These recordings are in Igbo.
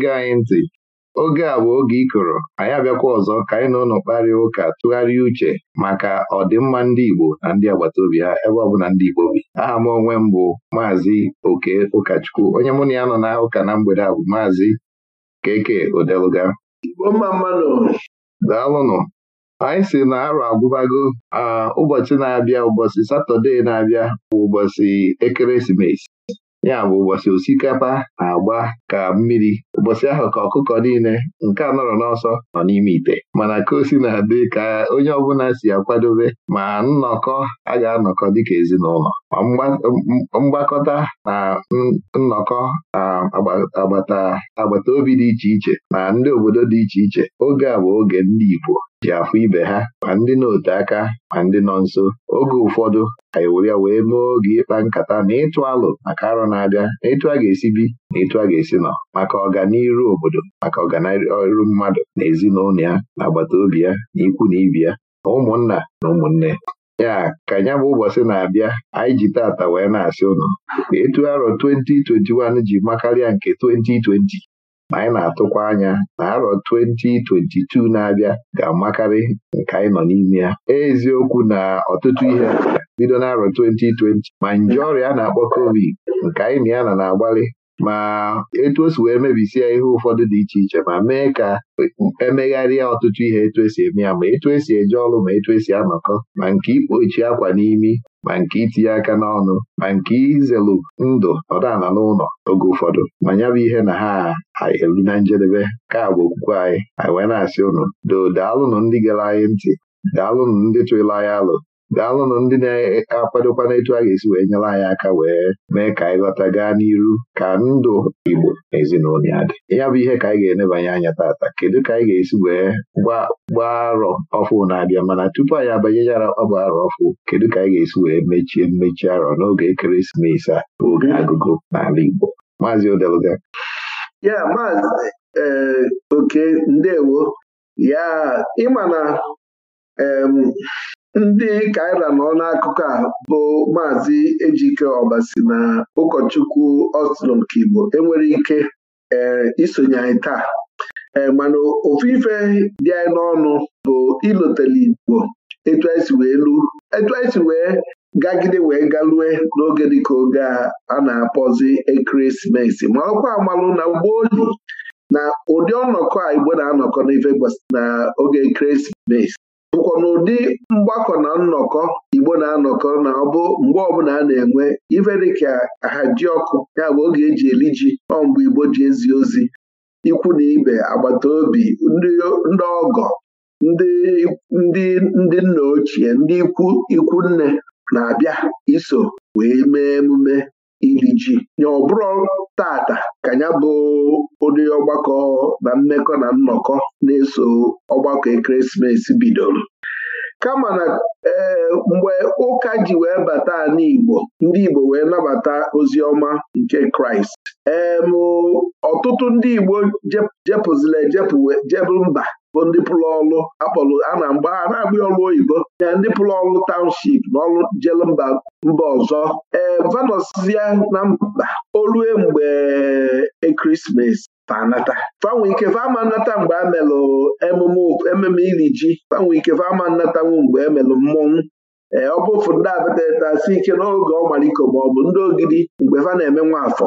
na-ege anyị ntị oge a bụ oge ịkọrọ anyị abịakwa ọzọ ka anyị na ụlọ kparịa ụka tụgharịa uche maka ọdịmma ndị Igbo na ndị agbata obi ha ebe ọ ndị Igbo bi aha m onwe m bụ maazị Oke Ụkachukwu onye mụ na ya nọ na ụka na mgbede a bụ maazị Keke Odeluga daalụnụ anyị si na arụ agwụbago ah, ụbọchị na-abịa ụbọchị Satọde na-abịa bụ ụbọchị ekeresimesi ya bụ ụbọchị osikapa na-agba ka mmiri ụbọchị ahụ ka ọkụkọ niile nke a nọrọ n'ọsọ nọ n'ime ite mana ka o si na-adị ka onye ọbụla si akwadobe ma nnọkọ a ga-anọkọ dịka ezinụlọ ma mgbakọta na nnọkọ agbata obi dị iche iche na ndị obodo dị iche iche oge a bụ oge ndị Igbo ji afụ ibe ha ma ndị na-ote aka ma ndị nọ nso oge ụfọdụ anyị e were ya wee mee oge ịkpa nkata na ịtụ alụ maka arọ na-abịa na ịtụ a ga-esi bi na ịtụ a ga-esi nọ maka ọganiru obodo maka ọganiru mmadụ na ezinụlọ ya na agbata obi ya na ikwu na ibi ya na ụmụnna na ụmụnne ya ka nya bụ ụbọchị na-abịa anyị ji tata wee na-asị ụnụ etu arọ 2021 ji makarịa nke 2020 ma anyị na-atụkwa anya na arọ 2022 na-abịa ga-amakarị nke anyị nọ n'ime ya eziokwu na ọtụtụ ihe bido n'arọ 2020 ma nje ọrịa a na-akpọ covid nke anyị na ya na na-agbalị ma etu o wee mebisie ihe ụfọdụ dị iche iche ma mee ka emegharịa ọtụtụ ihe etu esi eme ya ma etu esi eje ọrụ ma etu esi anọkọ ma nke ikpochi akwa n'imi ma nke itinye aka n'ọnụ ma nke izelu ndụ nọdana n'ụlọ oge ụfọdụ ma ya bụ ihe na ha eru na njedebe ka bụ okwukwe anyị anyị wee na-asị ụnụ doo daalụnụ ndị gara anyị ntị daalụnụ ndị tụrụ anyị alụ daalụnụ ndị na-akwadokwa n'etu a ga-esi wee nyere anyị aka wee mee ka anyị lọta gaa n'iru ka ndụ Igbo na ezinụlọ ya dị ya bụ ihe ka anyị ga-enebanye anya tata kedu ka anyị ga-esi wee gbaa arọ ọfụ na-abịa mana tupu anyị abanyechara ọgba arọ ọfụ kedu ka anyị ga-esi wee mechie mmechi arọ n'oge ekeresimesi a oge agụgụ n'ala Igbo maazị Odeluga ya maazị eh, oke ndewo ya ịma na ndị kaira nọ n'akụkụ a bụ maazị Ejike Ọbasi na ụkọchukwu Oslon Kigbo enwere ike eh, isonye anyị taa eh, mana ofu ife dị anyị n'ọnụ bụ ilotele Igbo etu anyị si wee lu etu anyị si wee gagide wee galue n'oge dịka oge a na-akpọzi ekeresimesi ma ọkwa amalụ na gboo na ụdị ọnọkọ a Igbo na-anọkọ n'ife na oge ekeresimesi bụkwa n'ụdị mgbakọ na nnọkọ Igbo na-anọkọ na ọbụ mgbe ọbụla a na-enwe ife dịka ha ọkụ ya bụ oge eji eri ji ọ mgbe Igbo ji ezi ozi ikwu na ibe agbata obi ndị ọgọ ndị ndị nna ochie ndị ikwu ikwu nne na-abịa iso wee mee emume ili ji ọbụrụ tata ka ya bụ ụdị ọgbakọ na mmekọ na nnọkọ na-eso ọgbakọ ekeresimesi bidoro kama na ee mgbe ụka ji wee bata n'Igbo ndị Igbo wee nabata ozi ọma nke Kraịst ee ọtụtụ ndị Igbo jepụzila ejepụ mba bụ ndị pụrụ ọlụ akpọrọ a na mgba a na-agba ọlụ oyibo ya ndị pụrụ ọlụ taụnship na ọlụ jele mba mba ọzọ ee vanọsia na mba olue mgbe ekeresimesi fanata fanwe ike fama nnata mgbe a melụ emume ememe iri ji fanwe ike fama nnatanwu mgbe emelụ mmọnwụ ee ọ bụ ofu ndị abatatasi ike n'oge ọmaliko maọbụ ndị ogidi mgbe fa na-eme nwa afọ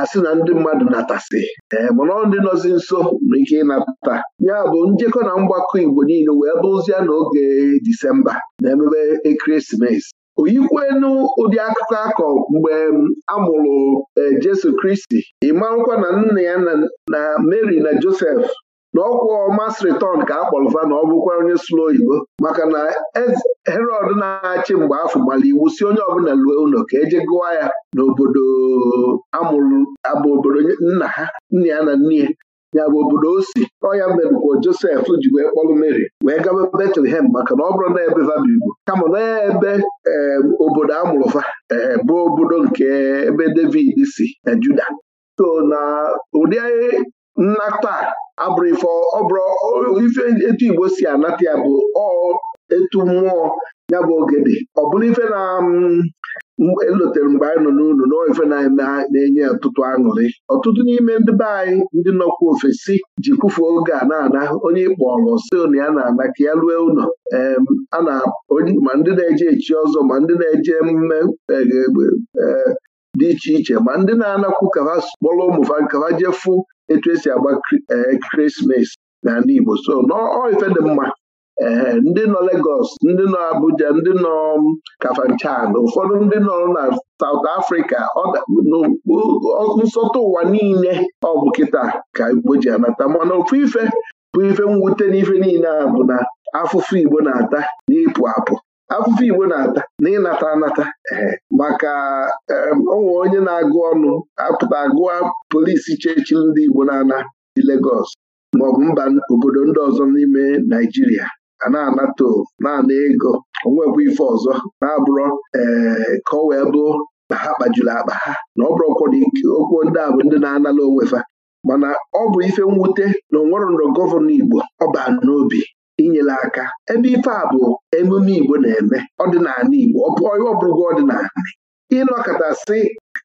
asị na ndị mmadụ natasị ee eh, mana ndị nọzi nso nwere ike ịnata ya bụ njekọ na mgbakọ Igbo niile wee bụzie n'oge Disemba na-emebe ekeresimesi oyikwenu ụdị akụkọ akọ mgbe mm, a mụrụ eh, Jesu Kristi ị na nna ya na Mary na Josef. N'ọkwa ọkwụ mas return ka a na ọ bụkwa onye sụrụ oyibo maka na herod na-achị mgbe afọ gbara iwu si onye ọbụla lue ụlọ ka eje gụwa ya n'obodo amụrụ abụ obodo nna ha nna ya na nne ya ya bụ obodo o si ọya merụkwo josef ji wee kpọlụ mary wee gaba betlehem maka na ọ bụrụ na ebe vabibo kama na ebe obodo amụrụfa bụ obodo nke ebe david si na juda so na ụdị nnata abụrụ ife ọbụrụ ife etu Igbo si anata ya bụ ọ etu mmụọ ya bụ ogede ọ bụrụ ife na mm, elotere e mgbe anyị nọ n'ụlọ na ife na-enye ọtụtụ aṅụrị ọtụtụ n'ime ndị be anyị ndị nọkwa ofesi ji kwụfe oge a na-ana onye ịkpọrọ na ya na-ana ka ya rue ụlọ ma ndị na-eje echi ọzọ ma ndị na-eje emume e, e, dị iche iche ma ndị na-anakwu ka ha kpọrọ ụmụ nka ha jee fụ etu esi agba na eh, n'ala Igbo so n'ife dị mma ee eh, ndị nọ Lagos ndị nọ Abuja ndị nọ um, Kafanchan ụfọdụ ndị nọ na saut Africa nsọtụ ụwa niile ọ bụ kịta ka Igbo ji anata mana ofu ife bụ ife mwute n'ife niile a bụ na afụfụ Igbo na-ata n'ịpụ apụ afụfụ Igbo na-ata na ịnata anata maka onwe onye na-agụ ọnụ apụta agụa polisi chechiri ndị Igbo na-ana dị Legọs maọbụ mba obodo ndị ọzọ n'ime Naịjirịa a na-anata na ego onwekwa ife ọzọ na-abụrọ ee ka ọ wee bụo na ha kpajuru akpa ha na ọ bụrụkwọ na okwu ndị a bụ ndị na-anala onwefa mana ọ bụ ife mwute na onwerọndọ gọvanọ Igbo baa n'obi inyere aka ebe ife a bụ emume Igbo na-eme ọdịnala Igbo ọ bụrụgo ọdịnala ịnọkọtasị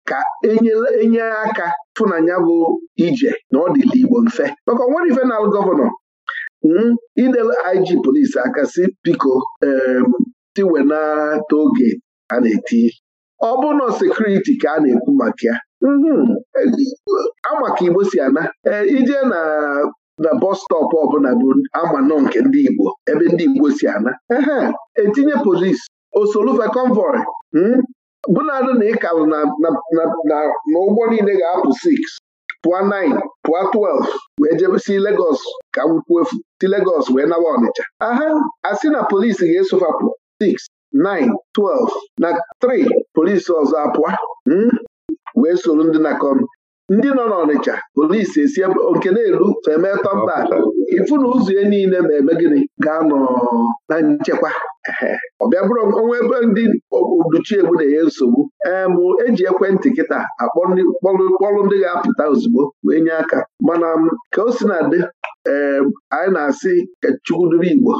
ka enye aka fụnanya bụ ije na ọ dịla Igbo mfe maka onwere ifenal gọvanọ hmm, idele IG polisi aka si biko tiwenata oge a na-eti ọ bụrụ na sekuriti ka a na-ekwu maka ya hmm, e, ama Igbo si ana e, ije na na bọs ọbụla bụ ama nọ nke ndị Igbo ebe ndị Igbo si ana ehe etinye polis osolufe convoy hmm? bụnadụ na ịkalụ na ụgbọ niile ga-apụ 6 pụọ 9 pụọ 12 wee jebe Legos ka nkwuo efu si Legos wee nawa Ọnịcha aha asị na polisi ga-esofapụ 6 9 12 na 3 polisi ọzọ apụa hmm? wee soro ndị na ndị nọ n'Ọnịcha polisi esi nke na-elu femeta mba ifu na ụzọ ya niile ma eme gịnị ga-anọ na nchekwa ọ bịa bụrụ ọnwa ebe ndị oduchiegbu na-enye nsogbu ee eji ekwentị kịta akpọkpọrụ ndị ga-apụta ozugbo wee nye aka mana ka o si na dị ee anyị na-asị ka Chukwu Igbo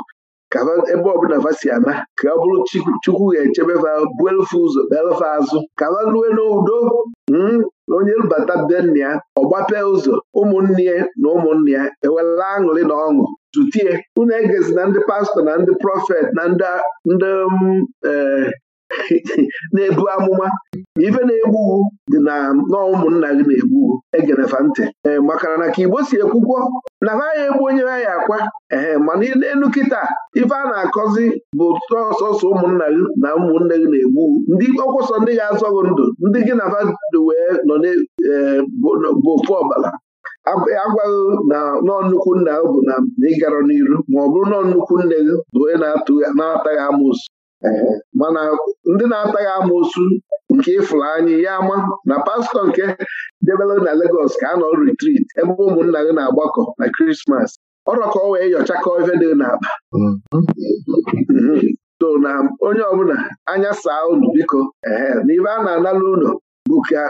ka ebe ọbụla fa si ana ka ọ bụrụ chukwu ga-echebe fa buelfe ụzọ belfe azụ ka fa lue n'udo hmm, na onye bata be nna ya ụzọ ụmụnne na ụmụnne ya ewela aṅụrị na ọṅụ tutie unu egezi na ndị pastọ na ndị prọfet na ndị um, eh, na-ebu amụma ife na-egbughu dị na n'ụmụnna gị na-egbughu egenefa ntị ee eh, makana na ka Igbo si ekwukwo na ha ya egbu onye ya akwa ee mana n'elu kịta ife a na-akọzi bụ sọsọsọ ụmụnna gị na ụmụnne gị na-egbu ndị ọkwụsọ ndị ga-azọ gị ndụ ndị gị na fadị wee nọ eh, bụ ofu ọbala agwaghị na nọ nnukwu nna bụ na ịgarọ n'iru ma ọ bụrụ nọ nnukwu nne gị bụ onye na-ataghị amụsụ mana ndị na-ataghị amoosu nke ịfụrụ anyị ya ama na pastọ nke debere na Legọs ka a nọ retrit ebe ụmụnna gị na-agbakọ na krismas ọrọ ọ wee nyochakọ ife dị n'akpa To na onye ọbụla anya saa unu biko ehe na ibe a na-anala ụlọ bụ ka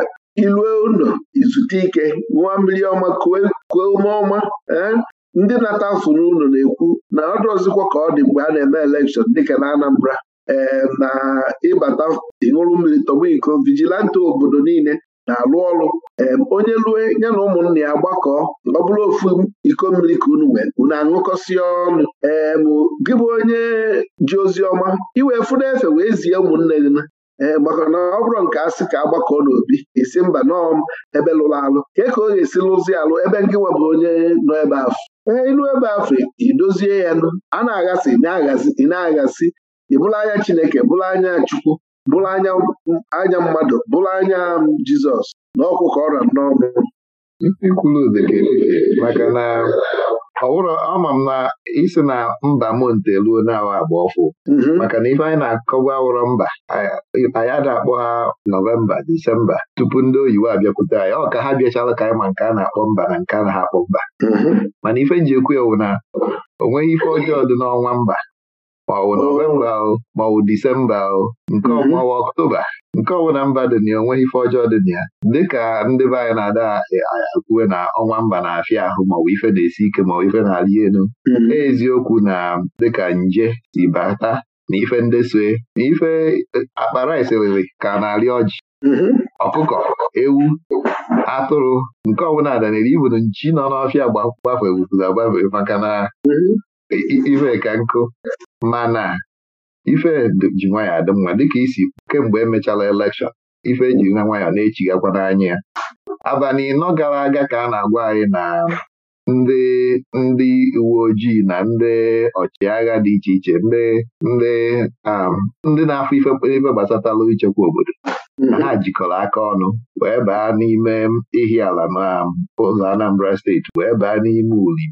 ilue ụlọ izute ike nwa mmiri ọma kuo ume ọma eh? ndị na-ata afụ n'ụlọ na-ekwu na ọ ọzụkwọ ka ọ dị mgbe a na-eme elekshọn dịka na Anambra ee na ịbata ịṅụrụ mmiri tọgbọ iko vigilante obodo niile na-alụ ọrụ onye lue ya na ụmụnne ya gbakọ ọ bụrụ ofu iko mmiri ka unu wee unu aṅụkọsịa ọnụ ee gị bụ onye ji ozi ọma iwee fụna efe wee zie ụmụnne gị na ee maka na ọ bụrụ nke a ka agbakọ n'obi esi mba nọọ ebe lụrụ alụ Kee ka ọ ga-esi lụzi alụ ebe nke webụ onye nọ ebe afọ ee ilu ebe afọ idozie ya nụ a na-aghasị ị na-aghasị ị bụla anya Chineke bụla anya Chukwu bụla anya anya mmadụ bụla anya Jizọs na ọkwụ ka ọ ra n'ọnụ maka na ọ ama m na isi na mba m nteluo na agba ọfụ mhm. maka na ife anyị na-akọgwa awụrọ mba anyị ada akpọ ha nọvemba disemba tupu ndị oyibo abịakwute anyị ọ ka ha bịachala ka anyị ma nke a na-akpọ mba na nke a na-akpọ mba mhm. mana ife nji ekwu ewu na o nweghị ife ọjọọ dị n'ọnwa mba ma ọ bụ oh. nọvemba ahụ ma ọ disemba nke mm-hmm. ọnwa ọktoba nke ọbụla mba dị na onweghị ife ọjọọ dị na ya dịka ndị be anyị na-ada e, akwuwe na ọnwa mba na-afịa ahụ maọbụ ife na-esi ike maọbụ ife na-arị elu mm-hmm. e, Eziokwu na dịka nje si bata na ife ndesoe na ife e, akpara isiriri ka na-arị ọjị mm-hmm. ọkụkọ ewu atụrụ nke ọbụla danere ibunu nchi nọ n'ọfịa gbafewupụrụ agbafe maka na ife ka nkụ mana ife ji nwayọ adị mma dịka isi kemgbe emechala elekshọn ife e ji na na-echigakwa n'anya ya abalị ịnọ gara aga ka a na-agwa anyị na ndị ndị uwe ojii na ndị ọchịagha dị iche iche ndị ndị um, ndị na-afụ ife gbasatala ichekwa obodo mm-hmm. ha jikọrọ aka ọnụ wee baa n'ime ihi ala na um, ụzọ Anambra steeti wee baa n'ime uli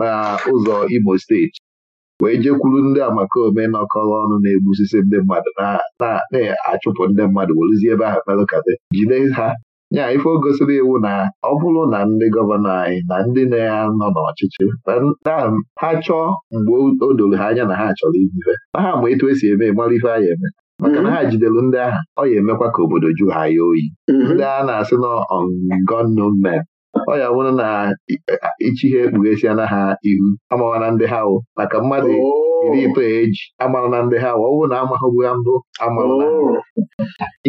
na ụzọ Imo steeti wee jekwuru ndị amakoome nọkọrọ ọnụ na-egbusisi ndị mmadụ na-achụpụ ndị mmadụ werụzie ebe ahụ merụkade jide ha nya ife o gosiri iwu na ọ bụrụ na ndị gọvanọ anyị na ndị na nọ n'ọchịchị na ha chọọ mgbe o doro ha anya na ha chọrọ ihe na ha ma etu esi eme mara ife anyị eme maka na ha mm-hmm. jidere ndị agha ọ ya emekwa ka obodo ju ha ya oyi mm-hmm. ndị a na-asị na ọ ya bụrụ na ichihe ekpughesiana ha ihu amawana na ndị ha wụ maka mmadụ oh. iri itoolu eji amara na ndị ha wụ ọ na amaghụbu ya ndụ amara oh.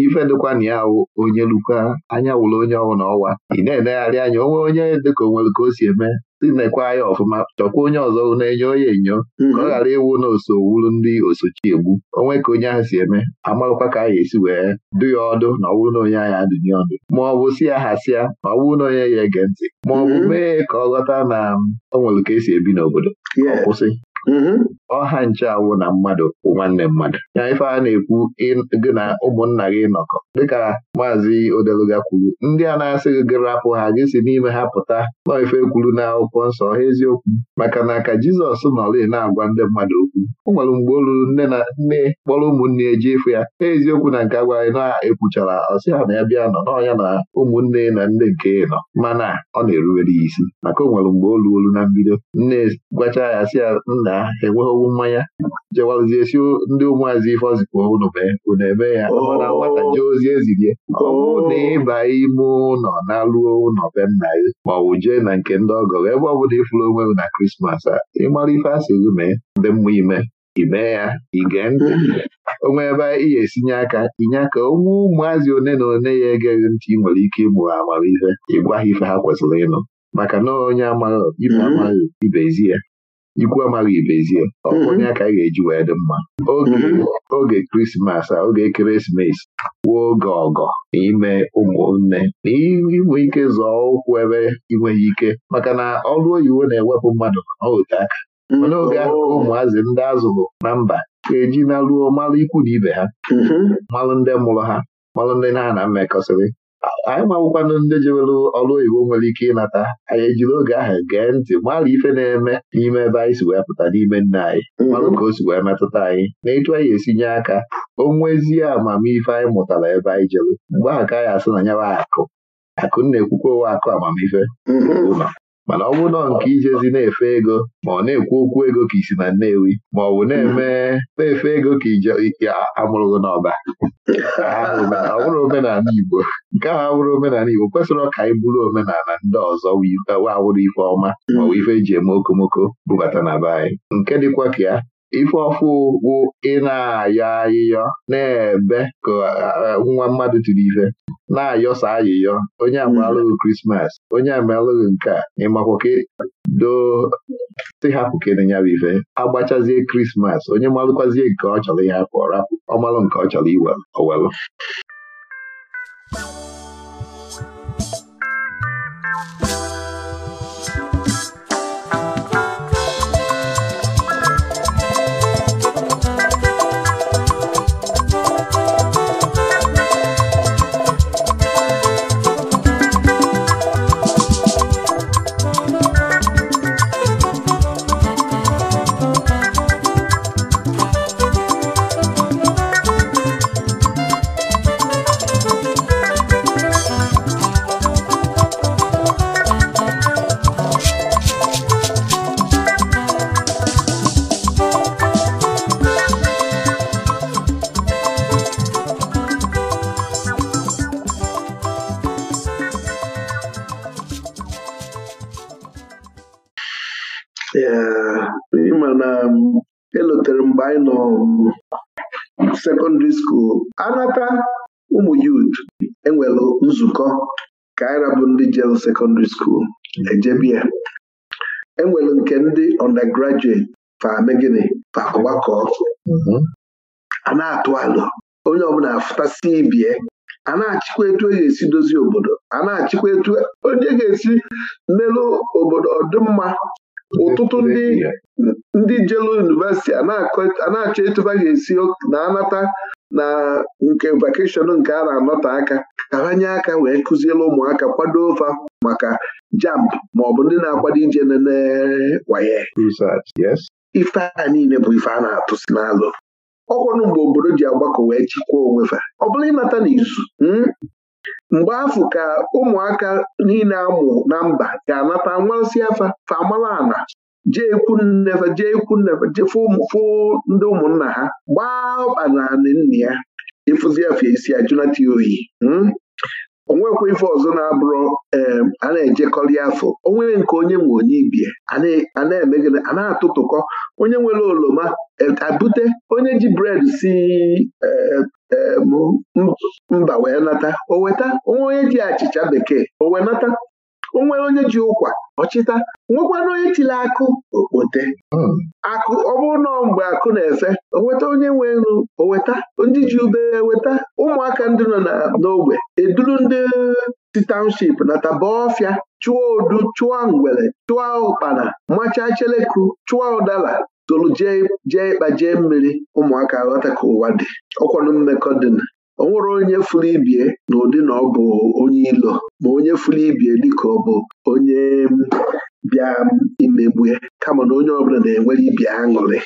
ife dịkwa na ya wụ onye lukwa anya wụrụ onye ọwụ na ọwa ị na-enegharị anya onwe onye dịka onwere ka o si eme na tinekwa ya ọfụma chọkwa onye ọzọ na-enyo onye enyo mhm. ka ọ ghara ịwụ na ndị osochi egbu onwe ka onye ahụ si eme amaghịkwa ka a ga-esi wee dụ ya ọdụ na ọ bụrụ na onye ahụ adụnye ọdụ ma ọ bụ si ya hasịa ma ọ bụrụ na onye ya ege ntị ma ọ bụ mhm. mee ka ọ ghọta na ọ nwere ka esi ebi n'obodo ọ kwụsị mhm. ọha nche awụ na mmadụ bụ nwanne mmadụ ya ife a na-ekwu gị na ụmụnna gị nọkọ dịka maazị odeluga kwuru ndị a na-asị gị rapụ ha gị si n'ime ha pụta naife kwuru na akwụkwọ nsọ ha eziokwu maka na ka Jizọs nọrị na-agwa ndị mmadụ okwu o nwere mgbe o ruru nne na nne kpọrọ ụmụnne eji efu ya eziokwu na nke agwaghị na-ekwuchara ọsị na ya bịa nọ n'ọnya na ụmụnne na nne nke nọ mana ọ na-erubere ya isi maka o nwere mgbe o ruolu na mbido nne gwacha ya sị ya nna enweghị ọwụ mmanya jewalụzie si ndị ụmụazị ife ọzikwa unu mee unu eme ya mana nwata oh. jee ozi ezirie ọ oh. bụrụ na ịba ime ụlọ na-alụo ụlọ be nna gị ma ọ bụ jee na nke ndị ọgọ ebe ọ bụla ịfụrụ onwe na krismas a ịmara ife asị gị mee ndị mmụọ ime ime ya ige ntị onwe ebe ị ga-esinye aka inye aka onwe ụmụazị one na one ya egeghị ntị ị nwere ike ịmụ ha amamife ịgwa ha ife ha kwesịrị ịnụ maka na onye amaghị ibe amaghị ibe ezi ya ikwu amaghị ibezie. ezie ọbụna mm-hmm. ya ka anyị ga-eji wee dị mma oge krismas mm-hmm. a oge ekeresimesi wuo oge ọgọ n'ime ụmụnne na inwe ike zọọ ụkwụ ebe inweghị ike maka na ọrụ oyiwo na-ewepụ mmadụ n'ote aka mm-hmm. mana oge ahụ ụmụazị ndị azụrụ na mba ga-eji na ruo malụ ikwu na ibe ha malụ ndị mụrụ ha malụ ndị na-ana mmekọsịrị anyị mawụkwanụ ndị jewere ọrụ oyibo nwere ike ịnata anyị ejiri oge ahụ gee ntị mara ife na-eme n'ime ebe anyị si wee pụta n'ime nna anyị marụ mhm. ka o si wee metụta anyị na etu anyị nye aka o nwezie amamife anyị mụtara ebe anyị jere mgbe ahụ ka anyị asị na akụ akụ na-ekwukwa owe akụ amamife mhm. ụlọ mana ọ bụrụ nọ nke ijezi na-efe ego ma ọ na-ekwu okwu ego ka isi na Nnewi ma ọ bụ na-eme na-efe ego ka ije amụrụgo n'ọba ọ bụrụ omenala Igbo nke ahụ abụrụ omenala Igbo kwesịrị ọka anyị bụrụ omenala ndị ọzọ wawụrụ ife ọma ma ọ ife eji eme okomoko bubata na be anyị nke dịkwa ka ya ife ọfụ bụ ị na-ayọ ayịyọ na-ebe ka eh, eh, nwa mmadụ tiri ife na-ayọsa ayịyọ onye amalụghị mm-hmm. krismas onye amalụghị nke a ịmakwa ka doo nyara hapụ ka ife agbachazie krismas onye malụkwazie nke ọ chọrọ ịhapụ ọ ọmalụ nke ọ chọrọ owelu Secondary School ejebia enwere nke ndị undergraduate fame gịnị fagbakọọ mhm. a na-atụ alụ onye ọbụla afụtasị ibie a na-achịkwa etu e ga-esi dozie obodo a na-achịkwa etu onye ga-esi melụ obodo ọdịmma ụtụtụ ndị jelu yunivesiti a na-achọ etuba ga-esi na anata na nke vakeshọn nke a na-anọte aka ka ha nye aka wee kụziere ụmụaka kwado ofa maka jamb maọbụ ndị na-akwado ije nenewaye ife a niile bụ ife a na-atụsi n'alụ ọkwanụ mgbe obodo ji agbakọ wee chịkwaa onwe fa ọ bụla ịnata n'izu hmm? mgbe afọ ka ụmụaka niile amụ na mba ga-anata nwarasị afa fa amala ana jee ikwu nnefe jee ikwu nnefe ndị ụmụnna ha gbaa ọkpa na anị nna ya ịfụzi isi ya junata oyi onwekwa ife ọzọ na-abụrụ a na-ejekọrị afọ onwe nke onye nwe onye ibie a na-emegide a na-atụtụkọ onye nwere oroma e, abute onye ji bred si e, e, mba wee nata o weta onwe onye ji achịcha bekee o wee nata o nwere onye ji ụkwa ọchịta nwekwana onye tiri akụ okpote hmm. akụ ọ bụrụ na mgbe akụ na-efe oweta onye nwe nru oweta ndị ji ube weta ụmụaka ndị nọ n'ogbe eduru ndị si township na tabaofia chụọ odu chụọ ngwere chụọ ụkpana machaa cheleku chụọ ụdala tolu jee ịkpa jee mmiri ụmụaka ghọta ka ụwa dị ọkwanụ mmekọ dị o nwere onye furu ibie na ụdị na ọ bụ onye ilo ma onye furu ibie dịka ọ bụ onye bịa imegbue kama na onye ọbụla na-enwere ibi aṅụrị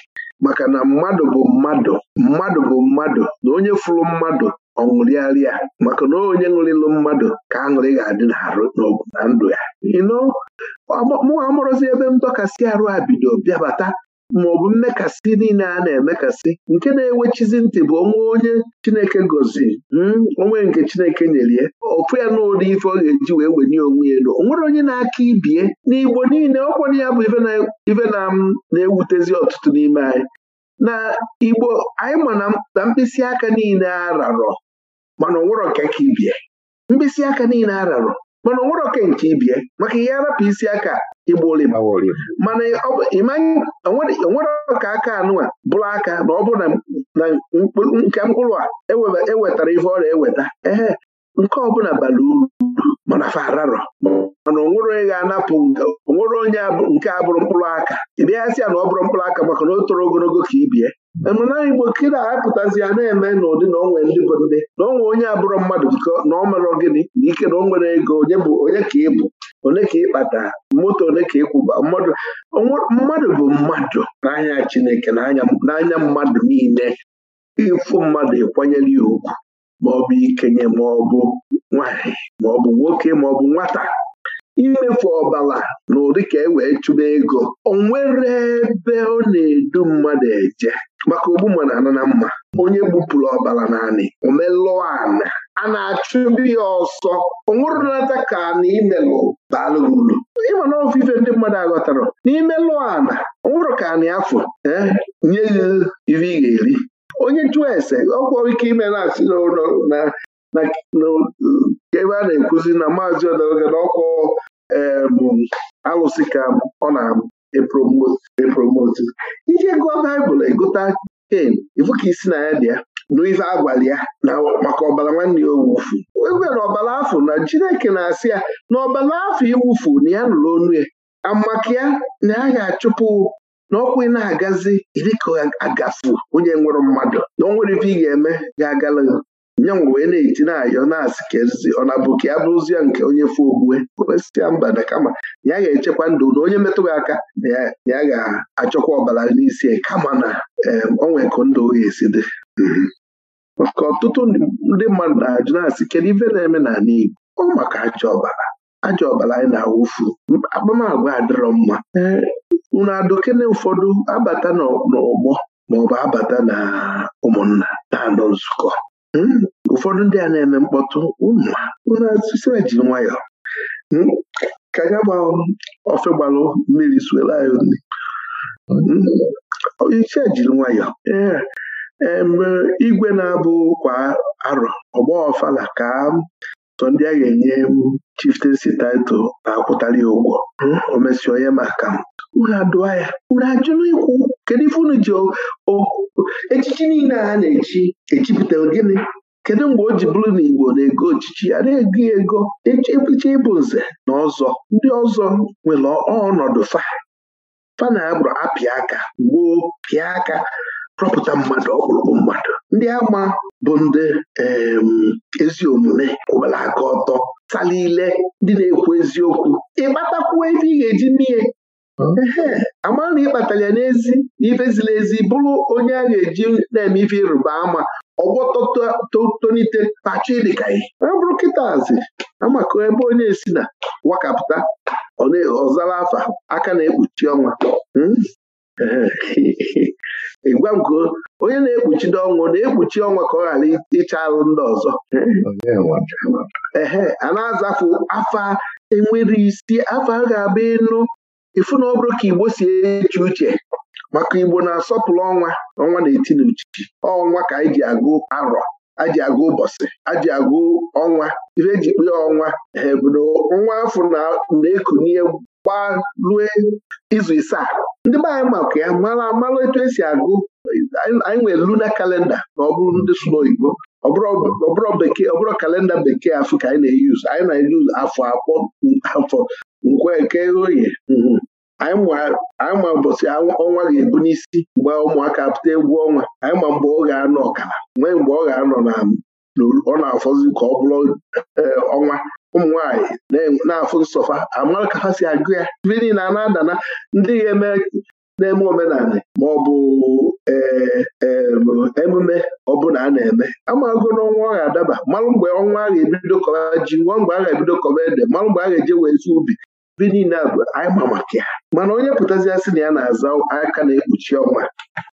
maka na mmadụ bụ mmadụ mmadụ bụ mmadụ na onye fụrụ mmadụ ọ ṅụrịarịa maka na onye ṅụrịlụ mmadụ ka aṅụrị ga-adị n'arụ n'ọgwụ na ndụ ya ino amụrụzi ebe ndọkasị arụ a bido bịabata maọbụ mmekasị niile a na-emekasị nke na-ewechizi ntị bụ onwe onye Chineke goziri hmm, onwe nke Chineke nyere ya ọfụ ya n'ụdị ife ọ ga-eji wee wenye onwe ya elu onwere onye na-aka ibie igbo niile ọkwanye ya bụ ife na-ewutezi ọtụtụ n'ime anyị na Igbo anyị ma na mkpịsị aka niile ararọ mana onwere ọka ka ibie mkpịsị aka niile ararọ mana onwere ọka nke ibie maka ihe arapụ isi aka igba olim mm-hmm. mana onwere ka aka anụwa bụrụ aka na ọ bụrụ na nke mkpụrụ a ewetara e ife ọrịa eweta ehe nke ọbụla bala uru mana fararọ mana onwere onye ga-anapụ onwere onye nke a bụrụ mkpụrụ aka ị bịaghasị ya na ọ bụrụ mkpụrụ aka maka na o toro ogologo ka ibie emana mm-hmm. igbo kịda apụtazi ya na-eme n'ụdị na onwe ndị bụ ndị na onwe onye abụrụ mmadụ biko na ọ mere gịnị na ike na o nwere ego onye bụ onye ka ị bụ ole ka ịkpata moto ole ka ịkwụba mmadụ mmadụ bụ mmadụ n'anya Chineke n'anya mmadụ niile ịfụ mmadụ ịkwanyere ya ugwu maọbụ ikenye maọbụ nwanyị maọbụ nwoke maọbụ nwata imefu ọbala na ụdị ka e wee chụba ego o nwere ebe ọ na-edu mmadụ eje maka ogbu mmadụ ana na mma onye gbupụrụ ọbala naanị omelụọ ana a na-achụ ndị ya ọsọ onwụrụnata ka na imelụ daalụ ịma na ofe ndị mmadụ aghọtara n'ime lụọ ana onwụrụ ka na afọ e, nye ya iri. ị ga-eri onye chụọ ese ọkwọ ike ime na-asị n'ụlọ na ebe a na-ekwuzi na maazi ọdọga na bụ e, alụsị ka ọ na-epromoti e ihe gụọ baịbụl egote ken ifu ka isi na ya dị ya n'ife agwali ya na maka ọbara nwanne ya owufu ewere ọbara afọ na Chineke na-asị ya na ọbara afọ iwufu na ya nụrụ onu ya amaka ya na ya ga-achụpụ na ọkwụ ị na-agazi dịka agafu onye nwere mmadụ na onwere ife ị ga-eme ga-agala nyanwụ wee na-eti na-ayọ na-asị ka ọ na-abụ ka ya nke onye fụ ogbue ya mba na kama ya ga-echekwa ndụ na onye metụghị aka na ya ga-achọkwa ọbara n'isi kama na onwe ka ndụ ga esi dị mhm. ka ọtụtụ ndị mmadụ na-ajụ na-asị kedu ife na-eme n'ala Igbo ọ maka ajọ ọbara ajọ ọbara anyị na-awụfu akpamagwa adịrọ mma unu adụkene ụfọdụ abata n'ọgbọ maọbụ abata na ụmụnna na-anọ nzukọ hmm? ụfọdụ ndị a na-eme mkpọtụ ụmụ unu asịsịra jiri nwayọọ hmm? ka ya gba ofe gbalụ mmiri suela anyị iche hmm? jiri nwayọọ ee mgbe igwe na-abụ kwa arọ ọgba ọfala ka sọ ndị a ga-enye chiftensi title na-akwụtali ụgwọ hmm, omesi onye maka m unu adụa ya unu ajụrụ ikwu kedu ife unu ji echichi niile a na-echi echipụta gịnị kedu mgbe o ji bụrụ na Igbo na-ego ochichi ya na-ego ego echicha ịbụ nze na ọzọ ndị ọzọ nwere ọnọdụ fa fa na agbụrụ apịa aka gboo, pịa aka rọpụta mmadụ ọkpụrụkpụ mmadụ ndị ama bụ ndị ezi omume kwụbara aka ọtọ tala ile ndị na-ekwu eziokwu ịkpatakwuo ebe ị ga-eji mmiri ehe, amara na ịkpatara ya n'ezi na ezi bụrụ onye a ga-eji na-eme ife ịrụba ama ọgwọ tonite tachi dịka ihe abụrụ kịtazi amaka ebe onye si na wakapụta ọzara afa aka na-ekpuchi ọnwa hmm? ịgwa m onye na ekpuchi ndị ọnwụ na-ekpuchi ọnwa ka ọ ghara ịcha arụ ndị ọzọ ehe a na-azafụ afa enwere isi afa ga abụ ịnụ ịfụ na ọ bụrụ ka Igbo si eche uche maka Igbo na-asọpụrụ ọnwa ọnwa na-eti ọnwa ka anyị ji agụ arọ aji agụ ụbọchị aji agụ ọnwa ife eji kpee ọnwa ebudo nwa afọ na-ekunye gbaa rue izu isaa ndị be anyị maka ya mara mara etu esi agụ anyị nwere luna kalenda na ọ bụrụ ndị sụrụ oyibo ọbụrụ bekee ọbụrụ kalenda bekee afọ ka anyị na-eyuzu anyị na-eyuzu afọ akpọ afọ nkwe nke oye anyị ma mbọsị ọnwa ga-ebu n'isi mgbe ụmụaka pụta egwu ọnwa anyị ma mgbe ọ ga-anọ ọkara nwee mgbe ọ ga-anọ ọ na-afọzi ka ọ bụrụ e, ọnwa ụmụ na-afụ nsọfa amara ka ha si agụ ya ibe niile na na-adana ndị na-eme omenala ma ọ bụ e, e, emume ọbụla a na-eme amago n'ọnwa ọ ga-adaba malụ mgbe ọnwa a ga-ebido kọba ji nwa mgbe a ga-ebido kọba ede malụ mgbe a ga-eje wee zu ubi be niile anyị ma maka ya mana onye pụtazia sị na ya na-aza aka na-ekpuchi ọnwa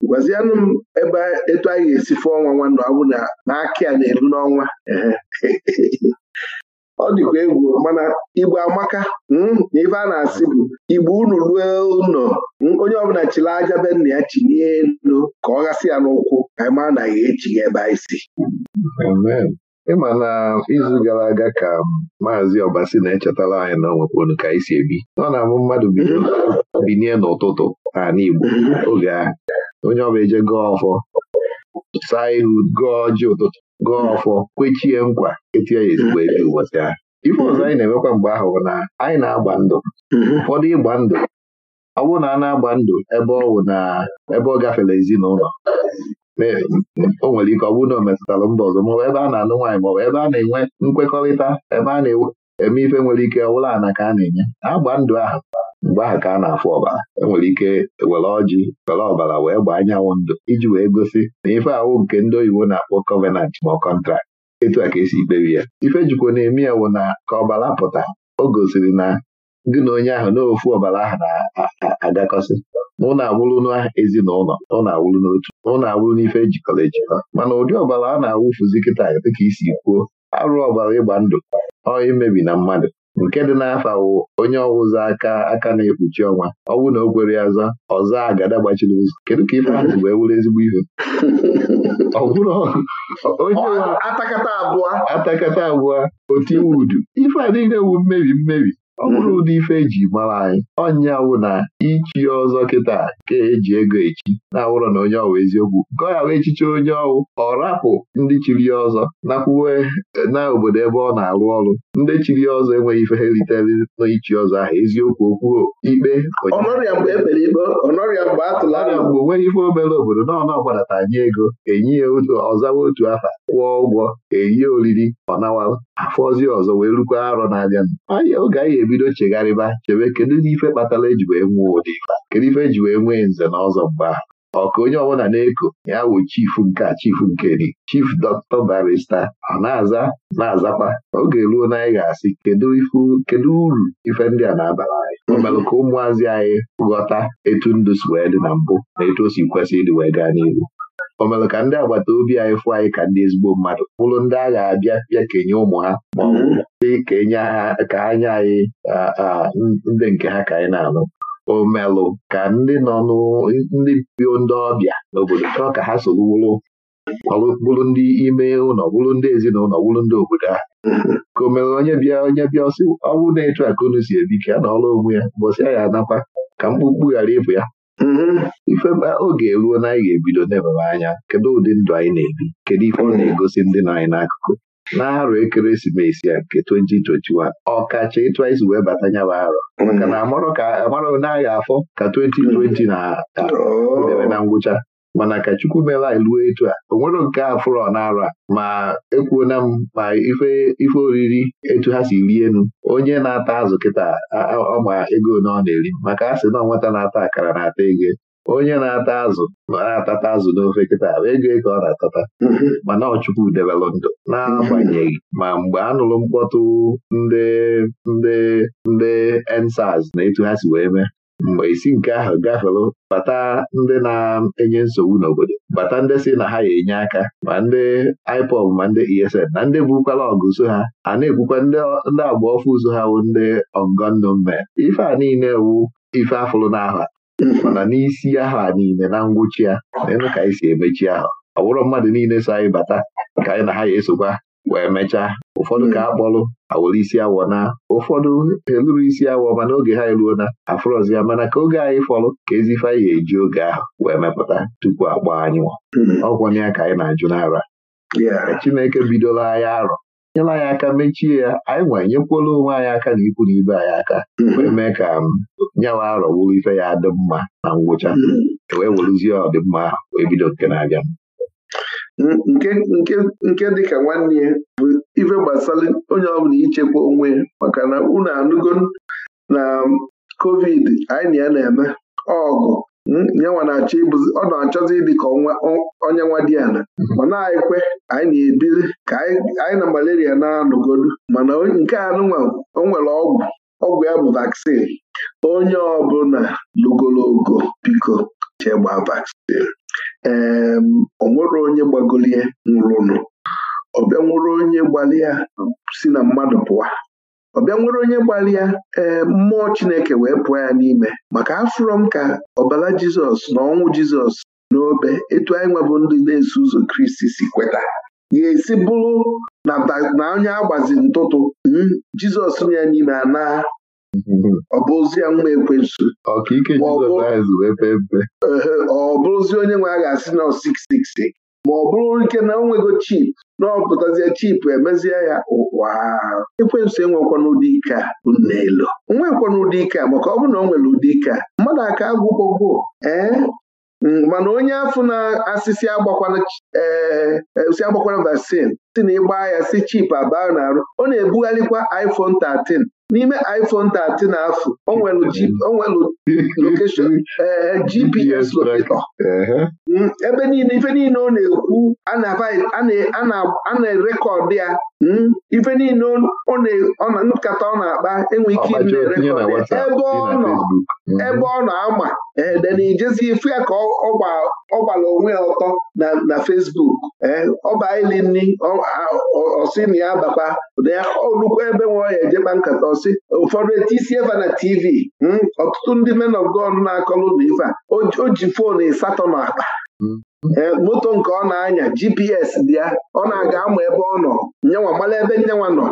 gwazianụ m ebe etu anyị ga-esi fụọ ọnwa nwanne ọ bụ na akị a na-eru n'ọnwa ọ dịkwa egwu mana igbo amaka hmm, na ife a na-asị bụ igbo unu ruo ụlọ hmm, onye ọbụla chiri aja be nna ya chinye elu ka ọ gasị ya n'ụkwụ anyị ma na ya echighị ebe anyị si ịma na izu gara aga ka um, maazị Ọbasi na-echetara anyị na onwepụrụ ka anyị si ebi ọ na-amụ mmadụ binie n'ụtụtụ n'ala Igbo oge ahụ onye ọbụla eje gọọ ọfọ saa ihu gụọ ji ụtụtụ gụọ ọfọ kwechie nkwa etie ya ezigbo ebi ụbọchị ahụ ife ọzọ anyị na-emekwa mgbe ahụ na anyị na-agba ndụ mhm. ụfọdụ ịgba ndụ ọ bụrụ na a na-agba ndụ ebe ọ na ebe ọ gafere ezinụlọ o nwere ike ọ bụrụ na o metụtara mba ọzọ maọbụ ebe a na anụ nwaanyị maọbụ ebe a na-enwe nkwekọrịta ebe a na-eme ife nwere ike ọbụla ana ka a na-enye agba ndụ ahụ mgbe ahụ ka a na-afụ ọbara enwere ike were ọjị were ọbara wee gbaa anyanwụ ndụ iji wee gosi na ife awụ nke ndị oyibo na-akpọ kọvenant ma ọ kọntrakt etu a ka esi ikpebi ya ife jikwa na-eme ya wụ na ka ọbara pụta o gosiri na gị na onye ahụ n'ofu ọbara ahụ na-agakọsị na ụnụ awụrụ n'ezinụlọ na ụnụ n'otu na ụnụ n'ife ejikọrọ ejikọ mana ụdị ọbara a na-awụfuzi kịta dịka isi kwuo arụ ọbara ịgba ndụ ọ imebi na mmadụ nke dị n'afọ wụ onye ọwụzọ aka aka na-ekpuchi ọnwa ọwụ na o kwere ya ọzọ agada gbachiri ụzọ kedu ka ife ahụ wee wụrụ ezigbo ihe ọ bụrụ onye atakata abụọ atakata abụọ otiwudu ife a niile wu mmebi mmebi ọ bụrụ hmm. ụdị ife eji mara anyị ọnya wụ na ichi ọzọ kịta ka eji ego echi na-awụrọ na onye ọwụ eziokwu nke ọ ghara echichi onye ọwụ ọ rapụ ndị chiri ya ọzọ nakwuwe eh, na obodo ebe ọ na-arụ ọrụ ndị chiri ya ọzọ enweghị ife ha n'ichi ọzọ ahụ eziokwu okwu ikpe ọnọrịa mgbe e onweghị ife obere obodo na ọnụ ọgbadata nye ego enye ya otu ọzawa otu afa kwụọ ụgwọ eyie oriri ọ afọzi ọzọ wee rukwa arọ n'abịa anya oge anyị ebido chegharịba chebe kedu ife kpatara eji wee nwee ụdị ife kedu ife eji wee nwee nze na ọzọ mgbe ahụ ọ ka onye ọbụla na-eko ya wụ chifu nke a chifu nke dị chief dọkịta barista ọ na-aza na-azakwa oge ruo na anyị ga-asị kedu uru ife ndị a na-abara anyị mhm. ka ụmụazị anyị ghọta etu ndụ si wee dị na mbụ na etu o si kwesị ịdị wee gaa n'ihu o ka ndị agbata obi anyị fụ anyị ka ndị ezigbo mmadụ bụrụ ndị a ga-abịa bịa kenye ụmụ ha ma mm-hmm. ka ha ka ha nye anyị ndị nke ha ka anyị na-anụ omelụ ka ndị nọ ndị bio ndị ọbịa n'obodo chọọ ka ha soro bụrụ ndị ime ụlọ bụrụ ndị ezinụlọ bụrụ ndị obodo ha mm-hmm. ka o onye bịa onye bịa ọsị ọ bụrụ na-etu akụ si ebi ka na ọrụ onwe ya mbọsị ya anakwa ka mkpụkpụ ghara ịbụ ya Mhm. ifeba oge eruo na anyị ga-ebido n'ebebe anya kedu ụdị ndụ anyị na-ebi kedu ife ọ na-egosi ndị nọ anyị n'akụkụ arụ ekeresimesi a nke 2021 ọkacha ịtụ isi wee bata nyaba arọ mhm. maka na amara afọ ka 2020 na debe na ngwụcha mana ka Chukwu meela anyị etu a o nwero nke a na-ara ma ekwuona m ma ife oriri etu ha si rie enu onye na-ata azụ kịta ọma ego na ọ na-eri maka a sị na nwata na-ata akara na-ata ego onye na-ata azụ na-atata azụ n'ofe kịta ego e ka ọ na-atata mana ọchukwu debelụ ndụ na-agbanyeghị ma mgbe a nụrụ mkpọtụ ndị ndị ndị ensaz na etu ha si wee mee mgbe isi nke ahụ gafere bata ndị na-enye nsogbu n'obodo bata ndị si na ha ya enye aka ma ndị IPOB ma ndị ESN na ndị bukwala ọgụ so ha a na-ekwukwa ndị agba ọfụ ụzọ ha bụ ndị ọgọnnọ mme ife a niile wu ife afụrụ n'ahụ mana n'isi ahụ a niile na ngwụchi ya na elu ka anyị si emechi ahụ ọ bụrụ mmadụ niile so anyị bata ka anyị na ha ya esokwa wee mechaa ụfọdụ ka hmm. a kpọlụ awụrụ isi awọ na ụfọdụ eluru isi awọ mana oge ha eruo na afrọzi ya mana ka oge anyị fọrọ ka ezife ihe eji oge ahụ wee mepụta tupu agba anyị nwa hmm. ọgwọna ya ka anyị na-ajụ n'ara Chineke bidola anyị arọ nyela anyị aka mechie ya anyị nwee nyekwuola onwe anyị aka na ikwu na ibe anyị aka hmm. wee mee ka um, nyawa arọ bụrụ ife ya dị mma na ngwụcha e wee werụzie ọdịmma ahụ wee bido nke na-abịa nke nke dịka nwanne ya bụ ife gbasara onye ọbụla ichekwa onwe ya maka na unu anụgo na covid anyị na ya na-eme ọgụ nyanwa na-achọ ịbụzi ọ na-achọzi ịdị ka onye nwa dị ana ma na-ekwe anyị na-ebili ka anyị na malaria na-anọgodu mana nke anụnwa o nwere ọgwụ ọgwụ ya bụ vakcin onye ọbụla logologo biko chegba vaccine ee o nwere onye gbagolie nwụrụnụ ọbịa nwere onye gbalịa si na mmadụ pụwa ọbịa nwere onye gbalịa ee mmụọ Chineke wee pụọ ya n'ime maka afọrọ m ka ọbara Jizọs na ọnwụ Jizọs n'obe etu anyị nwebụ ndị na-eso ụzọ Kristi si kweta ga-esi bụrụ na onye agbazi ntụtụ hmm, Jizọs nọ ya n'ime a naa ọ bụrụzi nwa ekwensu ọ bụrụzi onye nwe a ga-asị na 666 ma ọ bụrụ ike na o nwego chip na ọpụtazie chip emezie ya ụwa ekwensu enwekwa ike a bụ nnaelu nwekwa n'ụdị ike maka ọ bụrụ na ọ nwere ụdị ike mmadụ aka agwụgbogbo ee mm, mana onye afọ na-asị e, si agbakwala vaccine si na ịgba ya si chip abaa na arụ ọ na-ebugharịkwa iPhone 13 n'ime iPhone 13 na-afụ o nwelu lokeshọn GPS locator ebe niile ife niile ọ na-ekwu a na-erekọdụ ya mm, ife niile nkata ọ na-akpa enwe ike ịdị na-erekọdụ ya ebe ọ nọ Mhm. ebe ọ na-ama ijezi ifu ya ka ọ gbara onwe ya ọtọ na Facebook e, ọbailini ọsị na ya bakwa na ya olukwu ebe nwe ya ejekpa nkata ọsị ụfọdụ etisi eva na TV hmm, ọtụtụ ndị men of God na-akọlụ na ife a o ji foonu ịsatọ na akpa hmm. e, moto nke ọ na-anya GPS dị ya ọ na-aga ama ebe ọ nọ nyanwa mara ebe nyanwa nọ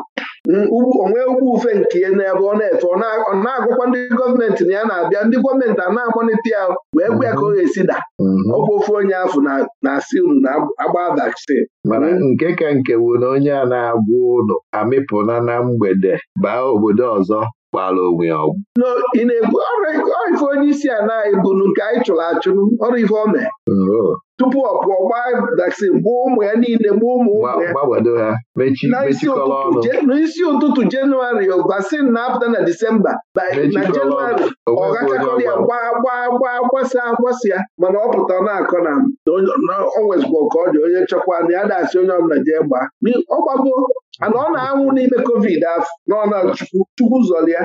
onwe ugwu ufe nke n'ebe ọ na efe ọ na-agụkwa ndị gọọmenti na ya na-abịa ndị gọọmenti a na-akpọnite ya wee gwa ya ka ọ ga-esi da mm-hmm. ọkwa ofe onye afụ na-asị unu na-agba vaccine nke ka nke bụ na onye a na-agwa ụlọ amịpụna na mgbede baa obodo ọzọ gbaala onwe ya ọgwụ ị na ọrụ ife onye isi a na-ebunu nke anyị chụrụ achụrụ ọrụ ife ọ mee tupu ọ pụọ gbaa vaccine gbuo ụmụ ya niile gbuo ụmụ ụmụ ya n'isi ụtụtụ jenụwarị vaccine na-apụta na disemba na jenụwarị ọ gachakọrọ ya gbaa gbaa ya mana ọ pụta na-akọ na ọ dị onye chọkwa na ya na asị onye ọbụla ọ ana ọ na-anwụ n'ime covid afọ nọ na chukwu zọlịa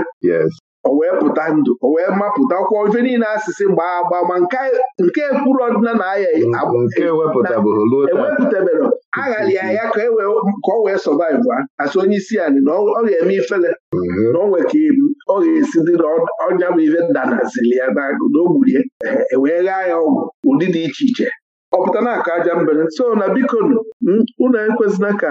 o wee pụta ndụ o wee kwa ife niile asịsị mgbe agba ma nke kwuru ọdịna na aya ewepụtabere aghalị ya ya ka ọ e wee sọvaiv a asị onye isi anyị na ọ ga-eme ifele mhm. na ọ nweka ibu ọ ga-esi dị na ọnya bụ ife danazili ya n'ogburie ewee ghaa ya ọgwụ ụdị dị iche iche ọ pụta na aka aja mbere so na bikonu unu ekwezina ka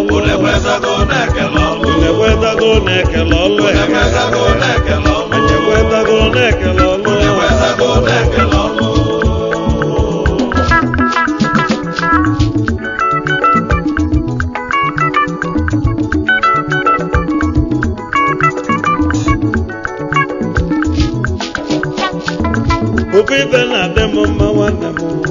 unu ekwetago na-ekele na-ekele ọlụ ekwetago na-ekele nwanne m